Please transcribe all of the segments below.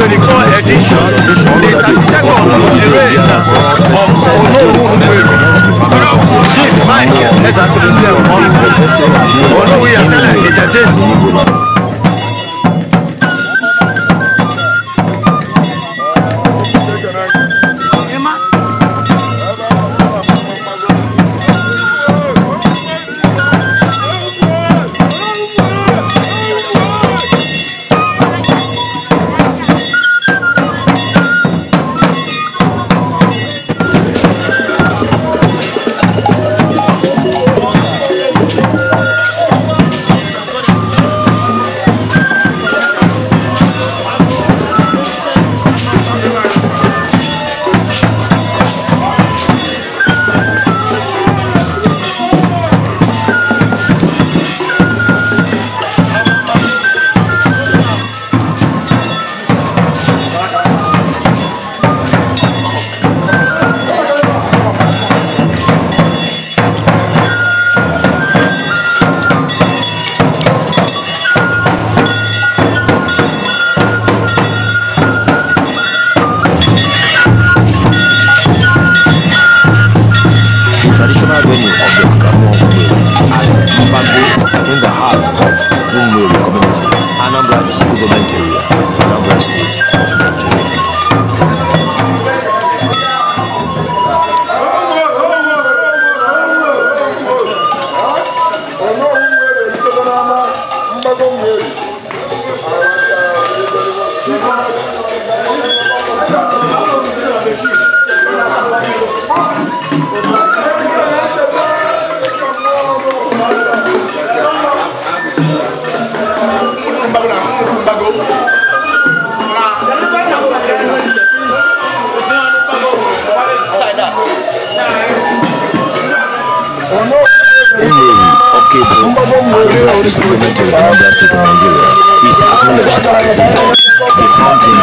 24 edition the 32nd Olere of Olówu Nkwere Honourable Chief Mike Ezakilule Omo Olówu Yasele the 13th. Nigeria is acknowledged as the the fountain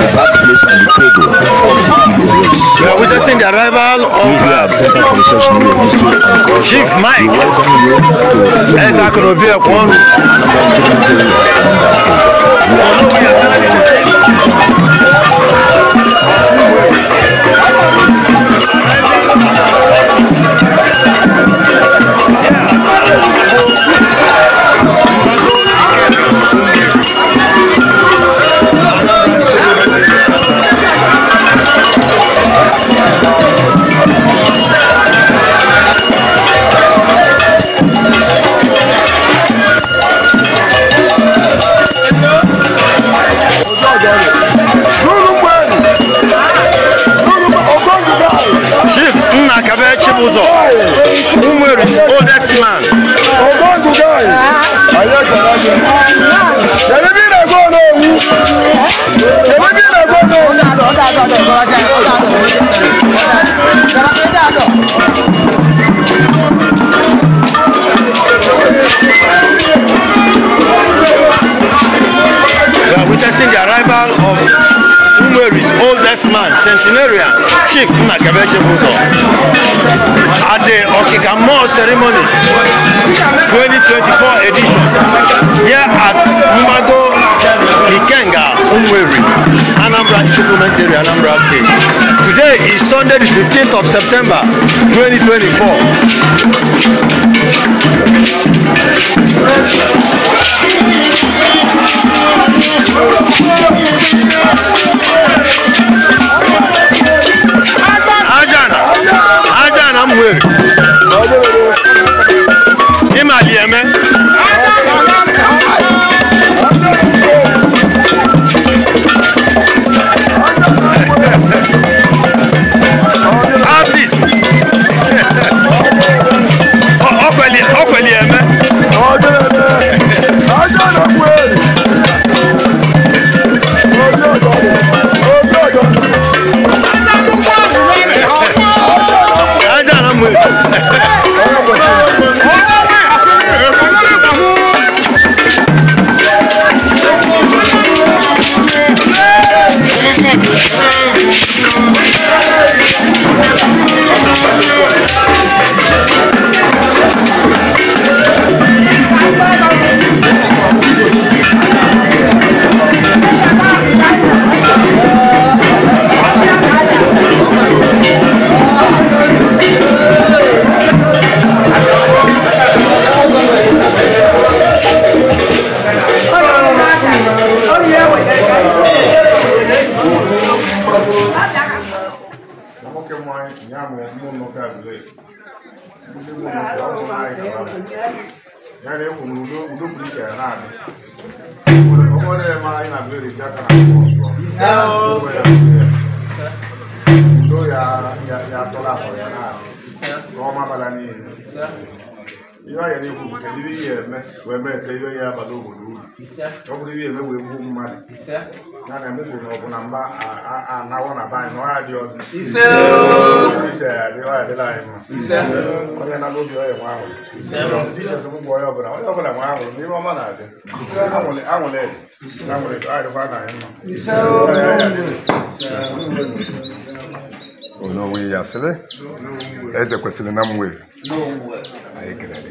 the birthplace and the cradle of the Igbo race. We are witnessing the arrival of we Research in History and Culture. Chief Mike. We welcome you to Igbo Ekwonu. We are entering the funeral of Umeri's oldest man, centenarian Chief Nnakebe Chibuzor. At the Okikamo ceremony 2024 edition here at Mumago Ikenga Umweri, Anambra Supplement Area, Anambra State. Today is Sunday the 15th of September 2024. Let's go. ya na emefuru na na mba anawọ na be anyị na ọzọ ise anyị mma onye nago obi ọya nwa ọbụla ọma na-adị anwụlị anwụlị anwụlị adịkwa na onwe ya sịrị eze kwesịrị na mwe anyị kelere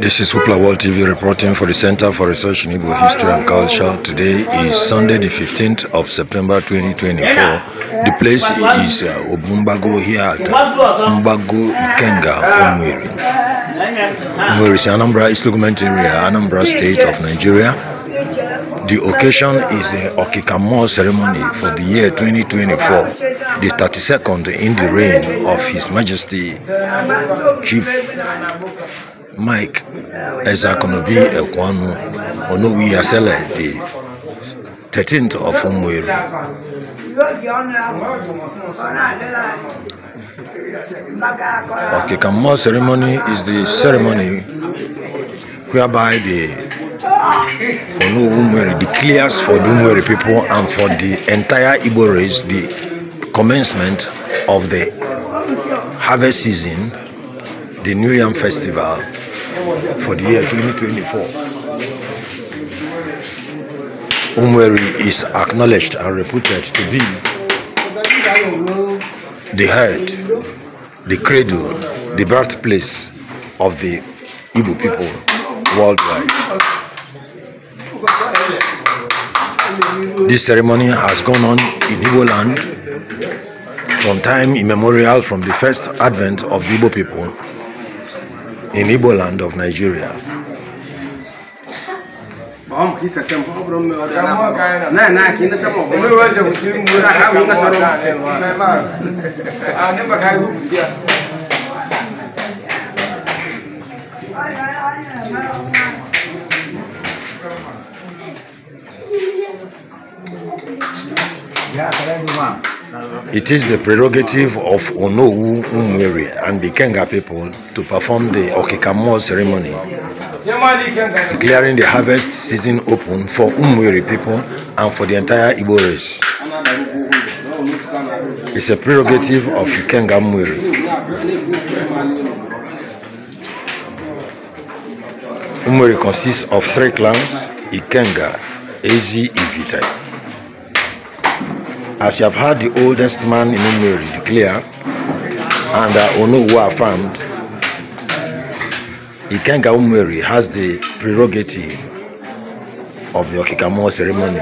This is Hoopla World TV reporting for the Center for Research in Igbo History and Culture. Today is Sunday, the 15th of September 2024. The place is uh, Obumbago here at Mbago Ikenga, Umwiri. Umwiri is Anambra East Lugment area, Anambra State of Nigeria. The occasion is the Okikamo ceremony for the year 2024. the 32nd in the reign of His Majesty Chief Mike Ezakonobi Ekwanu Onowi Asele, the 13th of Umueri. Okay, More ceremony is the ceremony whereby the Onowu Umueri declares for the Umueri people and for the entire Igbo race the commencement of the harvest season, the New Yam Festival for the year 2024. Umweri is acknowledged and reputed to be the head, the cradle, the birthplace of the Igbo people worldwide. This ceremony has gone on in Igbo land from time immemorial from the first advent of the Igbo people in Igbo land of Nigeria. Yeah, it is the prerogative of Onowu Umwiri and the Kenga people to perform the Okikamo ceremony, declaring the harvest season open for Umwiri people and for the entire Igbo race. It's a prerogative of Kenga Umwere. Umwiri consists of three clans, Ikenga, Ezi, Ivitai as you have heard the oldest man in Umeri declare, and uh, Ono who affirmed, Ikenga Umeri has the prerogative of the Okikamo ceremony,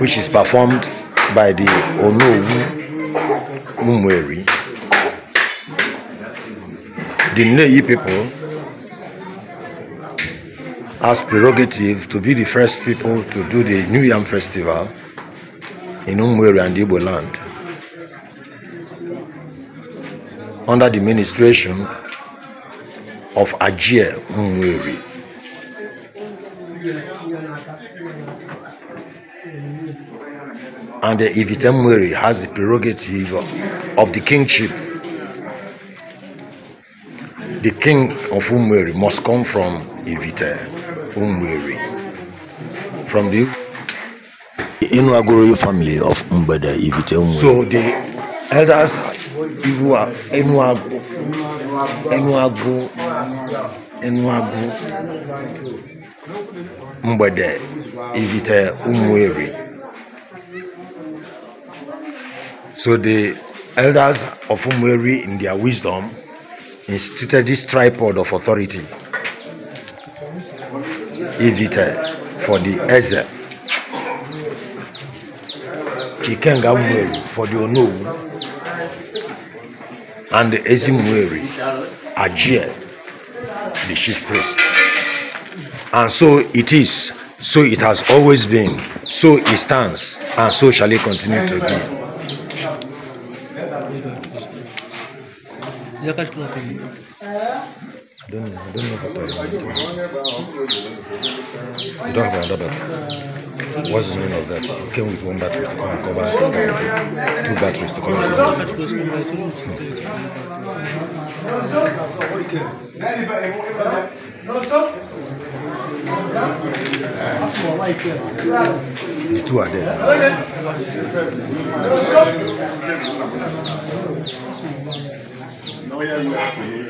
which is performed by the Ono Umeri. The Neyi people has prerogative to be the first people to do the New Yam Festival in Umweri and Igbo land. Under the ministration of Ajie Umweri. And the Ivitemweri has the prerogative of, of the kingship. The king of Umweri must come from Ivite Umweri. From the Inuagoro family of Mbeda Iviteumwe. So the elders people are Enuago, Enuago, Enuago, Mbeda Ivite Umweri. So the elders of Umweri in their wisdom instituted this tripod of authority Ivite for the Ezer Kikenga Mweri for the Onowu and the Ezimweri Ajie, the chief priest. And so it is, so it has always been, so it stands, and so shall it continue to be. Закажите don't know. I don't know Papa. I don't have another battery. What's the meaning of that? You came with one battery to come and cover two batteries to come and cover. The two are there. No, yeah,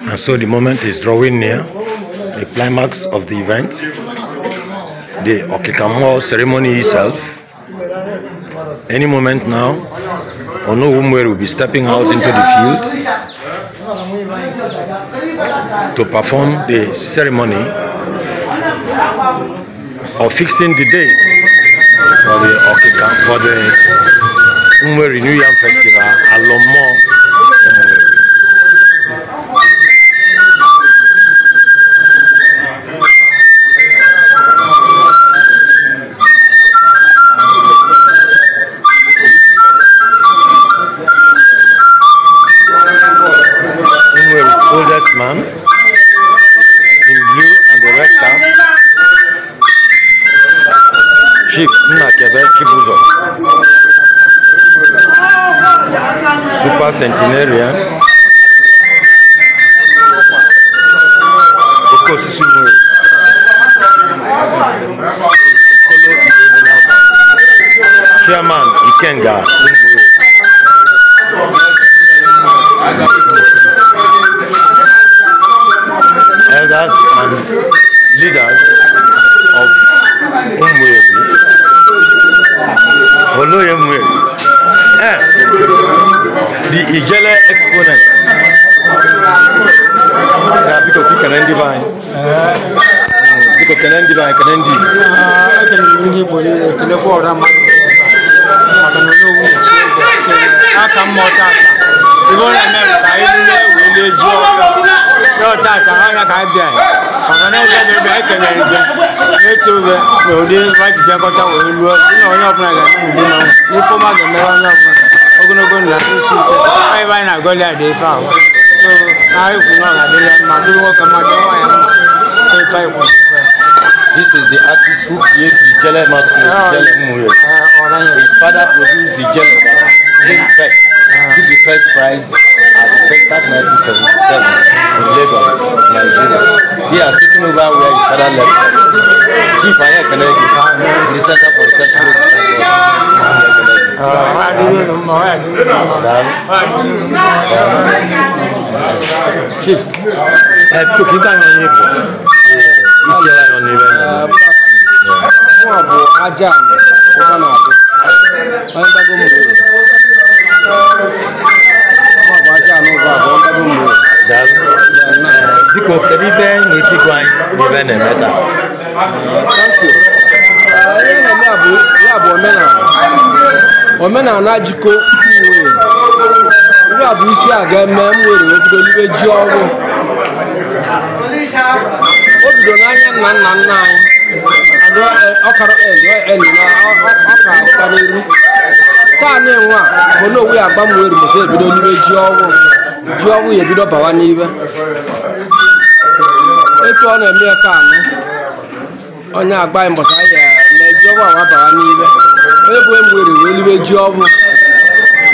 And so the moment is drawing near, the climax of the event. the Okikamo ceremony itself. Any moment now, Ono Onowumwe will be stepping out into the field to perform the ceremony of fixing the date for the Okikamo, for the Umwe New Yam Festival, Alomo This is the artist who created the jelly Master, Jelle Muye. His father produced the jelly. Jelle Fest. took the first prize at the Festa 1977 in Lagos, Nigeria. He has taken over where his father left off. Chief Aya Kenegi, the Center for Research ah, Chief, ẹ tó kí n ká yan yín pọ̀ ìtì ajá mi ó bá náà dé biko kedu ibe n'etikwa n'ibe na-eme taa ihe na-eme bụ ya bụ omenala omenala jikọ nwere ndị a bụ isi a ga-eme m nwere obido n'ibe ji ọrụ o bido n'anya nna nna nna anyị ọkara ọka karịrị taanị nwa bụ na owu ya agbanwe rumụta ebido n'ime ji ọwụ ji ọwụ ya ebido bawa n'ibe etu ọ na-eme ya taanị onye agba agbaghị mbọchị ya na ji ọwụ awa bawa n'ibe onye bụ enwere wee liwe ji ọwụ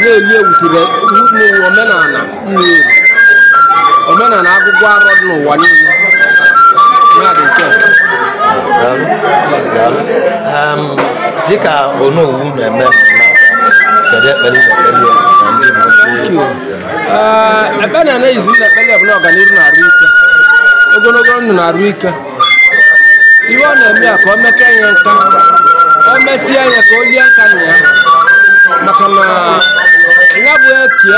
na-eli ewutere n'ụwa omenala mmiri omenala agụgụ arọ dị n'ụwa niile dị ehm, dịka onowu na-eme ekpere ah, na na-ejizi na ekpere bụ na ọganihu na-arụ ike ogologo ndụ na-arụ ike iwe ọ na-eme ya ka o meke ya nka o mesie ya ka o lie nka na ya maka na ya bụ eke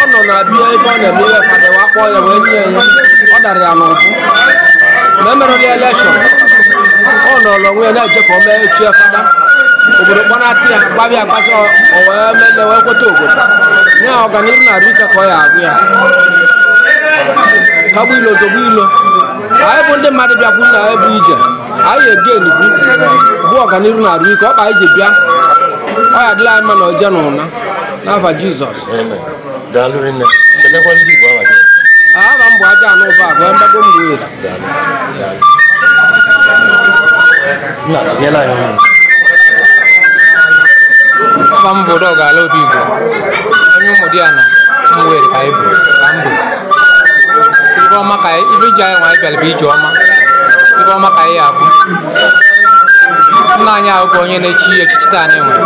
ọ nọ na bia ebe ọ na-eme ihe ka dịwa kpọọ ya wee nye ya ọ dara ya n'ụbụ ma e ya elekshọn ọ nọ n'onwe ya na-eje ka o mee echi fada obodo kpọnatụ ya gbabi agbacha owee mele wee kweta obodo nye ya ọganihu na arụike ka ọ ya agụ ya tọgbu ilo togbu ilo anyị bụ ndị mmadụ bịakwu na anyị bụ ije anyị egeni bụ bụ ọganihu na-arụ ike ọkpa ije bịa ọ ya dịla anyị mma na oje na ụna n'afa jizọs aha m bụ aja anụ ụba abụọ mgbago mgbe afa m bụ dọg ala obi igbo onye ụmụ di ya na mwere ka ibu ka m bụ ibe ọma ka ibe iji anyị nwanyị bịara bụ ije ọma ibe ọma ka anyị abụ nna anyị ahụghị onye na-echi echichi taa anyị nwere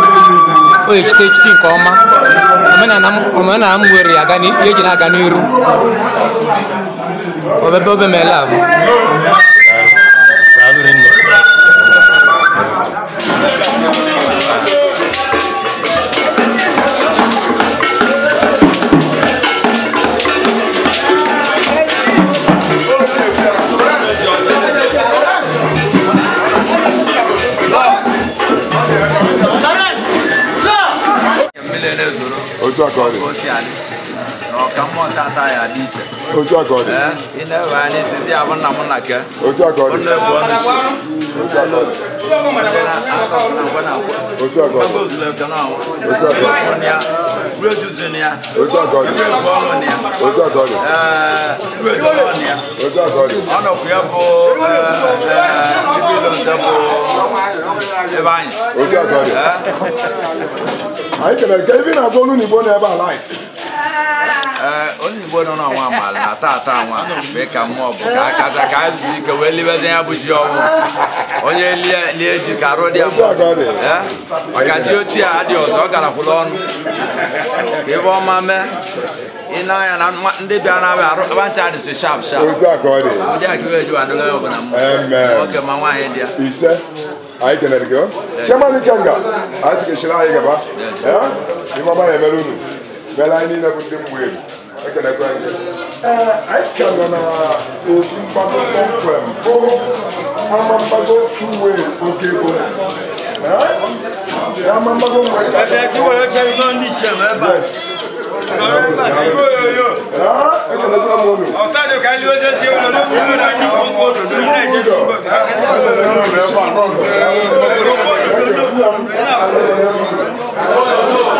o echite echichi nke ọma omenala m were ya eji na-aga n'iru obebe obe meela abụ otu aka ọ dị na ọkammụọ tata ya dị iche otu aka ọ dị ị na-ewe anya isizi abụ nna m na ke otu aka ọ dị nne bụ ọnụ isi otu aka ọ dị otu aka ọ dị otu aka ọ dị produce ni a. ojú ọkọ ni. ewé bọ́ọ̀lù ni a. ojú ọkọ ni. ewé bọ́ọ̀lù ni a. ojú ọkọ ni. ọ̀nà kúyà bó ibi ló ń tẹ́ bó ẹ̀bá yìí. ojú ọkọ ni. àyíkẹ̀lẹ̀ kẹ́ ibi náà Eh, onye Igbo nọ n'ọnwa amaala na tata nwa mgbe ka mmụọ bụ ka akaja ka a zuru ike wee libede ya bụ ji ọnwụ onye lie ji ka arụ dị ya eh, ochie a dị ọzọ ọ garakwụla ọnụ ka ebe ọma mee ịna na ndị na arụ abacha adịsị shap shap ndị a ka eh. gaba bɛla ni na ko den mu ye e kana ko an ye ɛɛ a ye kɛmɛ na o tun ba ko ko fɛn ko an ma ba ko tu we o ke ko ɛɛ an ma ba ko we. ɛɛ ti wɛrɛ kɛ i b'an di tiɲɛ mɛ ba. ɔrɔ ba i ko yo yo. ɛɛ e kana taa mɔ mi. ɔ taa jɔ k'a li o jɛ tiɲɛ o la ne kun na ni ko ko do do ne ye jɛ sɔrɔ fɛ. ɛɛ ko ko do do ne ye ko ko do do ne ye ko ko do do ne ye ko ko do do.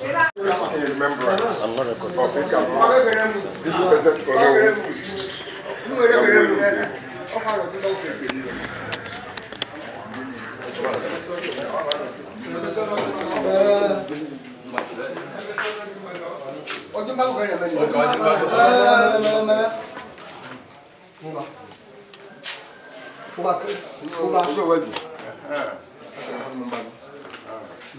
我给你买个客人吧，你买。买买买买买买。弄吧。弄吧可以。弄吧没嗯。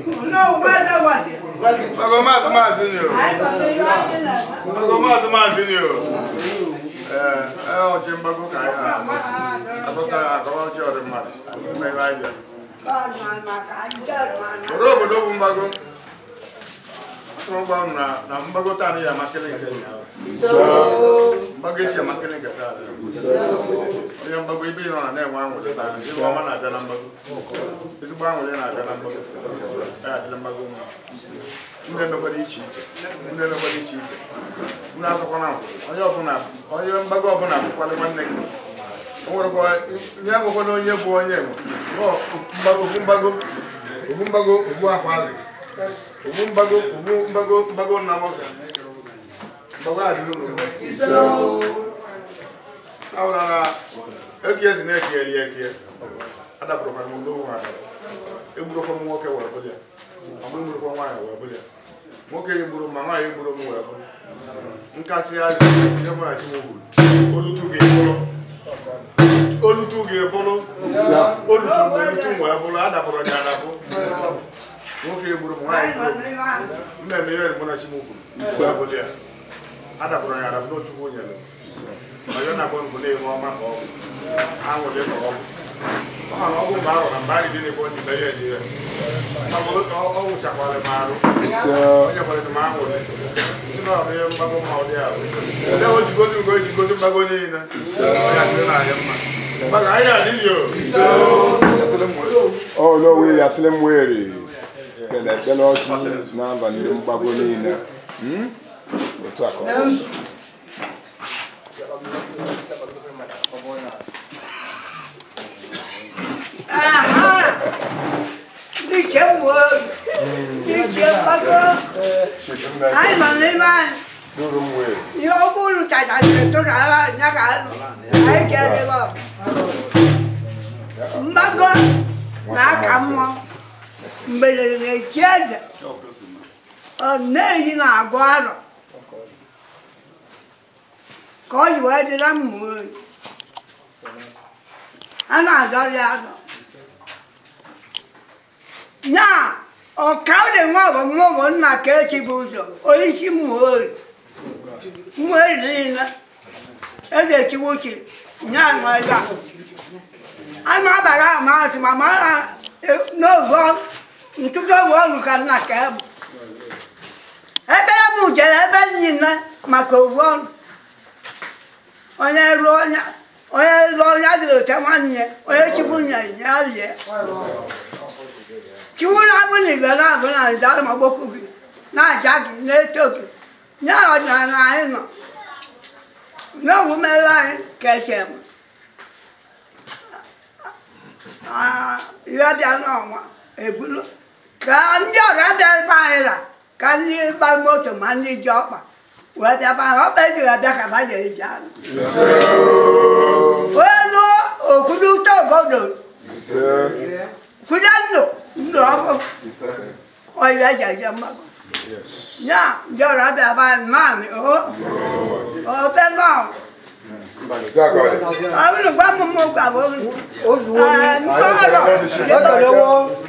No, where that was it? Mago Mas Mas in you. Mago Mas Mas in you. Eh, eh, o Jimba go kai. Apo sa akomo chi ore ma. Me vai ya. Ba ma ma ka ja ma. Robo do bumbago. chọrọ gwa m ya mgbagote anaghị amakelenga mgbago esi amakelenga taa onye mgbago ibe nọ na na-enwe anwụrụ taa ezigbo ọma na-abịa na mgbago ezigbo anwụrụ na na mgbago ya adịla mgbago nwa ndị iche iche iche iche onye ọbụla onye mgbago ọbụla nwanne gị o nwere nye na onye bụ onye mgbago ogbu mgbago ogbu ụmụ mbago ụmụ mgbago mgbago na m ọka na ezi na-eke eri eke adapụrụkwa m n'ụlọ ụwa egburukwa m nwoke wee bụlịa ọmụ egburukwa nwaanyị wee ma nwaanyị egburu m wee bụ nkasị azị ihe mụghachi m gburu olutu gị e bụrụ olutu e gị e bụrụ nwoke gburu m nwaanyị mmemme ihe mgbonachi m ugwu ya adapụrụ ya adapụ n'ochukwu nyere ọyọ na gbọngbụ na-enwe ọma ka ọgwụ anwụle na ọgwụ ọ ma na ọgwụ mgbe ọ na mgbe anyị dị n'ebe onye ibe ya eji ya ọgwụchakwara m ọ onyekwara m anwụle si na ọrụ ọ dị ahụ ndị o jigozi ya dị na-ahịa mma ọ ahịa ekpere ekpere ọchị n'abalị mgbago niile otu a ka ọ đi chém mượn đi chém bắt cơ ai mà đi ban đi ô cô chạy chạy chạy trốn chạy ra nhà cả ai chơi đi bao bắt cơ nã cầm không mberede na-echi eze nneji na-agụ arọ ka ọ ji wee dịra mma oyi a na-azọrị azọ nya ọkaụdị nwa ọgọ mma ọgọ nna ka echi bụ ụzọ onye isi mma oyi mma oyi niile eze chiwu chi nya nwa e a a na-abara amasị ma mara e, n'oge ntụtụ ọrụ ka nna ka bụ ebe ya jere ebe niile maka ovu eh, ọnụ onye ruo onye rụọ onye adịrị ote nwanne onye chukwu nye ya chukwu na-abụ na igwe na-abụ na ma gbokwu gị na-aja gị na-eto gị nye ọdịnala anyị nọ anyị ka eche m bịa n'ọnwa ebulu ka ndị ọra dịbe anyị ra ka ndị gba moto ma ndị ji ọkpa wee bịaba ha ọkpa ejighị abịa ka ba jere ji anụ onye lụọ okwuru ụtọ obodo kwude ndụ ndụ ọkụ ọyịa eji eje mmakọ ya ndị ọra dịbe anyị naanị o obe nọọ àwọn olùgbàmọ̀mọ̀ gbàgbọ́ ọ̀rọ̀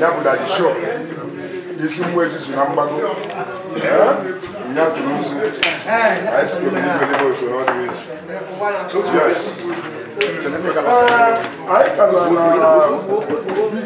ya bụ isi mgbe echizu na mgbago nya tụrụ nzu anyị si kpebe n'ibe n'ebe otu n'ọdịnihu otu ya anyị karịa na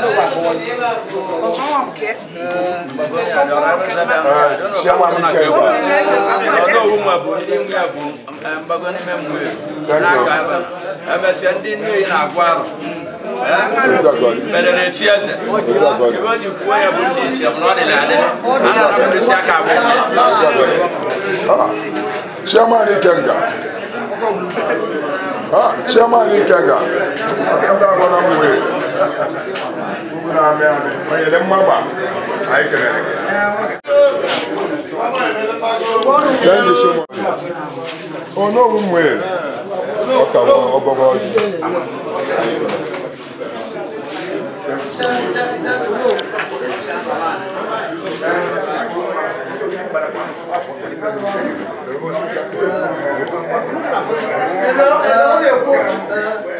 siama mi kɛ wa. ɔdɔ wu ma bon den mu ya bon mbagbɔ ni mɛ mu ye n'a ka ba ɛmɛ Mungu na ame ame. Mwenye le mwaba. Aikele. Thank you so much. Oh no, umwe. Oka wa obobo. Hello, hello, hello.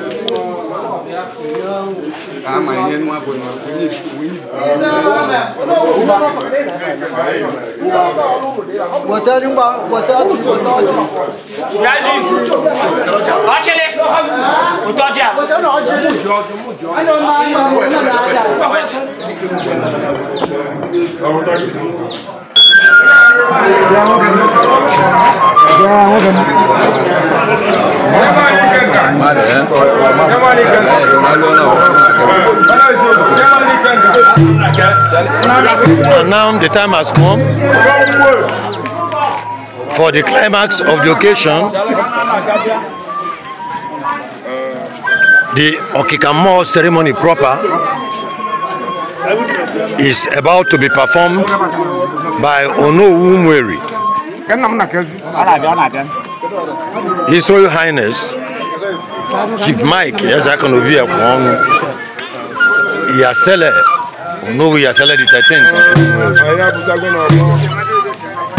ama ihe nwa bụ na onye wọta ji ngwa wọta ji wọta ji ya ji ọchịlị ụtọ ji a ọrụ And now the time has come for the climax of the occasion. The Okikamoo ceremony proper is about to be performed by Onowumweri. His Royal Highness Chief Mike I can Ezekonobi Ekwonu Yasele Onowu Yasele the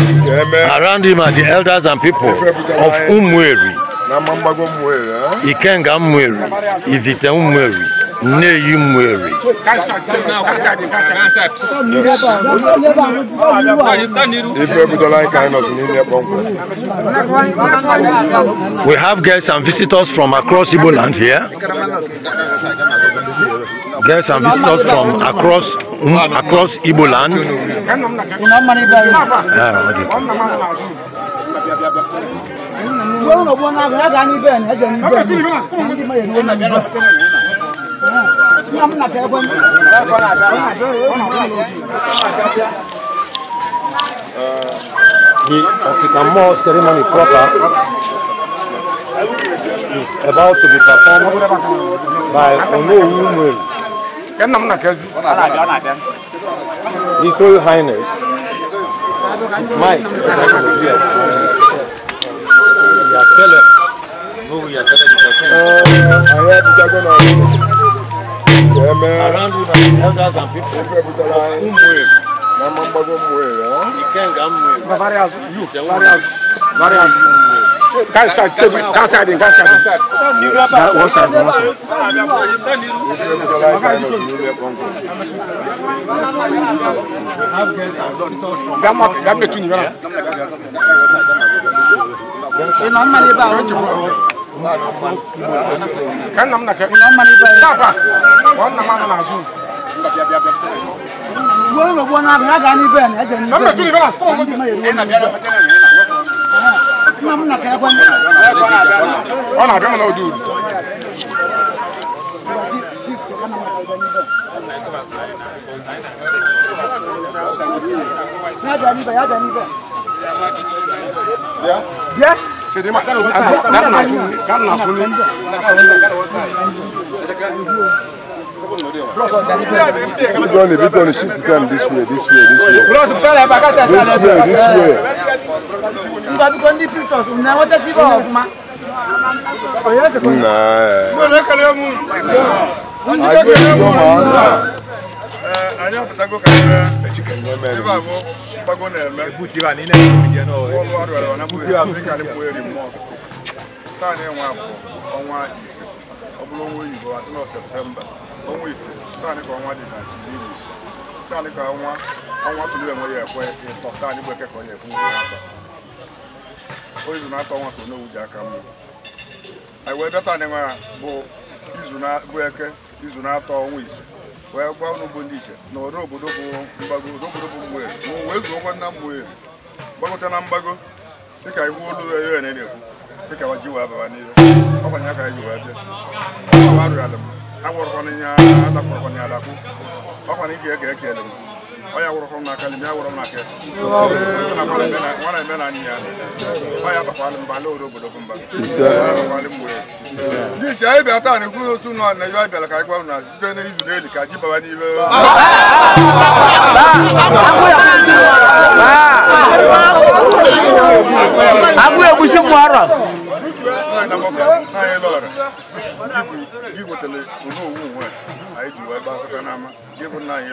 13th. Around him are the elders and people of Umweri, Ikenga Umweri, Ivite Umweri nne yi m were we have guests and visitors from across igbo land here guests and visitors from across um, across igbo land ah, okay. Well, no, one, I got any Ben, I got Ben. The African ceremony proper is about to be performed by Onowumwe. His Royal Highness, Mike, we uh, are telling, no, we are telling the person. I around you are elders and people who move. Mama mbago come, ya. Ikenga mwe. Na various you, various various kan sa tebi kan sa din kan sa din. Na one side one side. Dama dama tuni bana. Ina mali ba o ka nna m na ka papa ọ nna m anọ n'azụ uwe ụlọ gbuo na-abịa ya gaa n'ibe na eje nna m na ka ekwe ọ na-abịa m na ụdị uru ya bịa n'ibe ya bịa n'ibe bịa Jadi makan udah kan langsung kan langsung ini. We done it, this way, this way, this way. This way, this way. Nba bi kon di pictures, una um, wata si ba of ma. Oya oh, te kon. Na. Mo le kale mu. Ajo ni do ma. Eh, ajo patago kan. Ejike ni me. Eba bago na eme ebuti wa ni na ebuti je no wọlụ ọrụ ọrụ na ebuti wa afrịka na ebuti eri mmụọ taa na enwe abụọ ọnwa ise ọ bụrụ ọnwa oyibo atị na septemba ọnwa ise taa na ka ọnwa dị na iri ise taa na ka ọnwa ọnwa tụrụ enwe ya ekwe ịtọ taa na igbe kekọ ya ekwe ụgwọ aka oyibo na-atọ ọnwa tụrụ n'owu ji aka mmụ anyị wee bịa taa na enwe bụ izu na izu na-atọ ọnwa ise wee gwa ụlọ ugbo ndị iche na ọrụ obodo bụ mgbago obodo bụ mgbere ma wee zuokwa nna na mgbago dịka iwu olu ere na-ekwu dịka ka ji wee baba n'ihe ọkwanye aka ji wee bịa ọwa rụrụ ala m agwọrọkwana ihe adakwarakwana adakwu ọkwana ike eke m ọ ya wụrụ ọrụ n'aka n'ime ya wụrụ n'aka nwana eme na anyị ya ọ mba ala obodo mba ndị isi anyị bịa taa na-ekwu otu nọ na ihe anyị bịara ka anyị gwa na site n'izu n'eli ka ji baba n'ime abụ egwusi mụ arọ gị anyị ji wee gbaa bụ nna anyị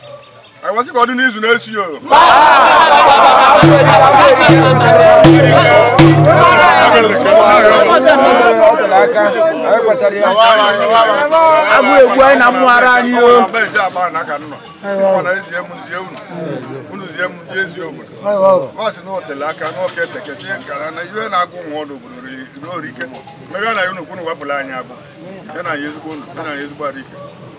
a wasị ka n'izu na-esi o agụ egwu anyị na mmụgharị anyị o unu zie m ndị ezi aka n'ọka na ihe na-agụ nwa ọdụ obodo ruo orike na ya ezigbo unu ya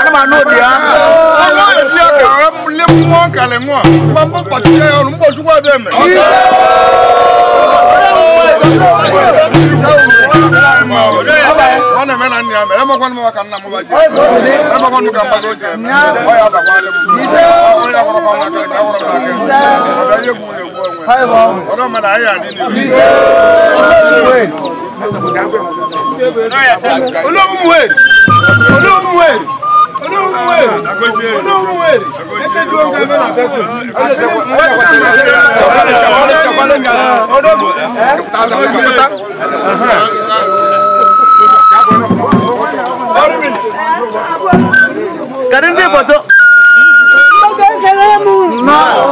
anama n'o di yan. ala yɛ fiya ka a le mɔ pati cɛ yɔrɔ n bɔ ọlọ́mọ náà ayé àní ni. olóhùn wẹ̀ olóhùn wẹ̀ olóhùn wẹ̀ olóhùn wẹ̀ ẹsẹ̀ dúró nǹkan mẹ́rin àbẹ́kùn. Kadang dia foto. Kau kan kalamu. Nah.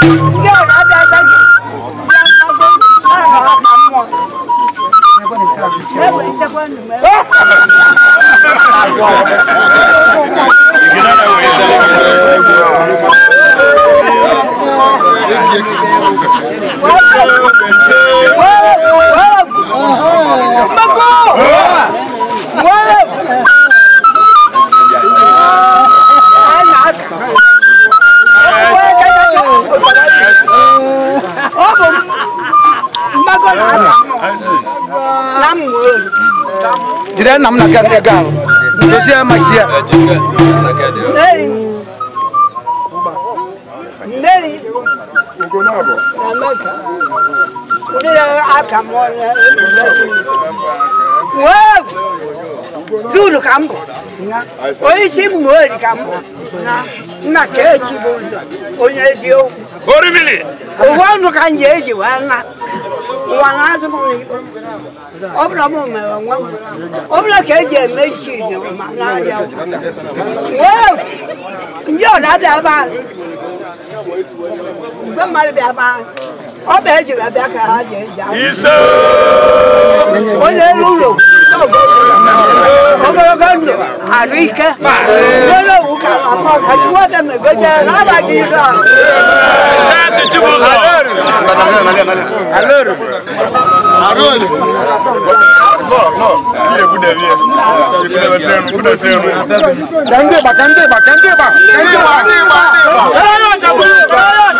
v o Me o n u o m Sida nam na kan egal. Dosi ama sida. Neri. Ugonabo. Amaka. Nera akamona. Wow. Dulu kambo. Oishi mwori kambo. Na na kechi bondo. Onyedio. Orimili. Owa no kanyeji wana. Wana zumo. obula mumewe ngwama obula keje meishinye manaya wewe njo nabe abantu bamali be abantu obeje babe akahaje eja iso oye lulo ogologando anuike lolo ukala kosa chiwote megoje nabajiga sasi chibuzo aloro aloro Aroni. No, no. Ile bude ile. Ile bude na bude senu. Kande ba, kande ba, kande ba. Kande ba, kande ba. Ara ta bu, ara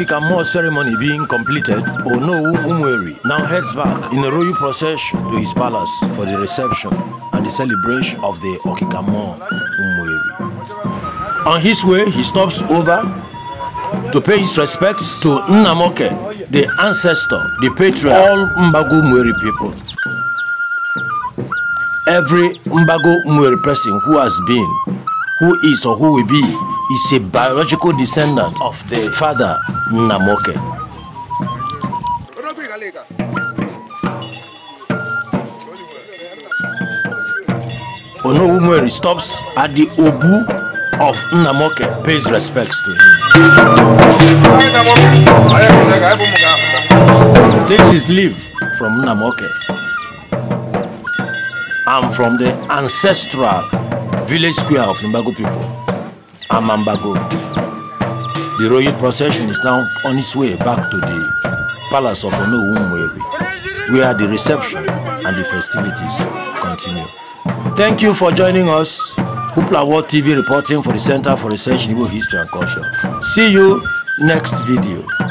Kikamo ceremony being completed, Onowu Umweri now heads back in a royal procession to his palace for the reception and the celebration of the Okikamo Umweri. On his way, he stops over to pay his respects to Nnamoke, the ancestor, the patriarch, all Mbago Umweri people. Every Mbago Umweri person who has been, who is or who will be is a biological descendant of the father Namoke. Onowumeri stops at the Obu of Namoke, pays respects to him. Takes his leave from Namoke and from the ancestral village square of Nimbago people. Amambago. The royal procession is now on its way back to the palace of Onowu where the reception and the festivities continue. Thank you for joining us. Hoopla World TV reporting for the Center for Research in Igbo History and Culture. See you next video.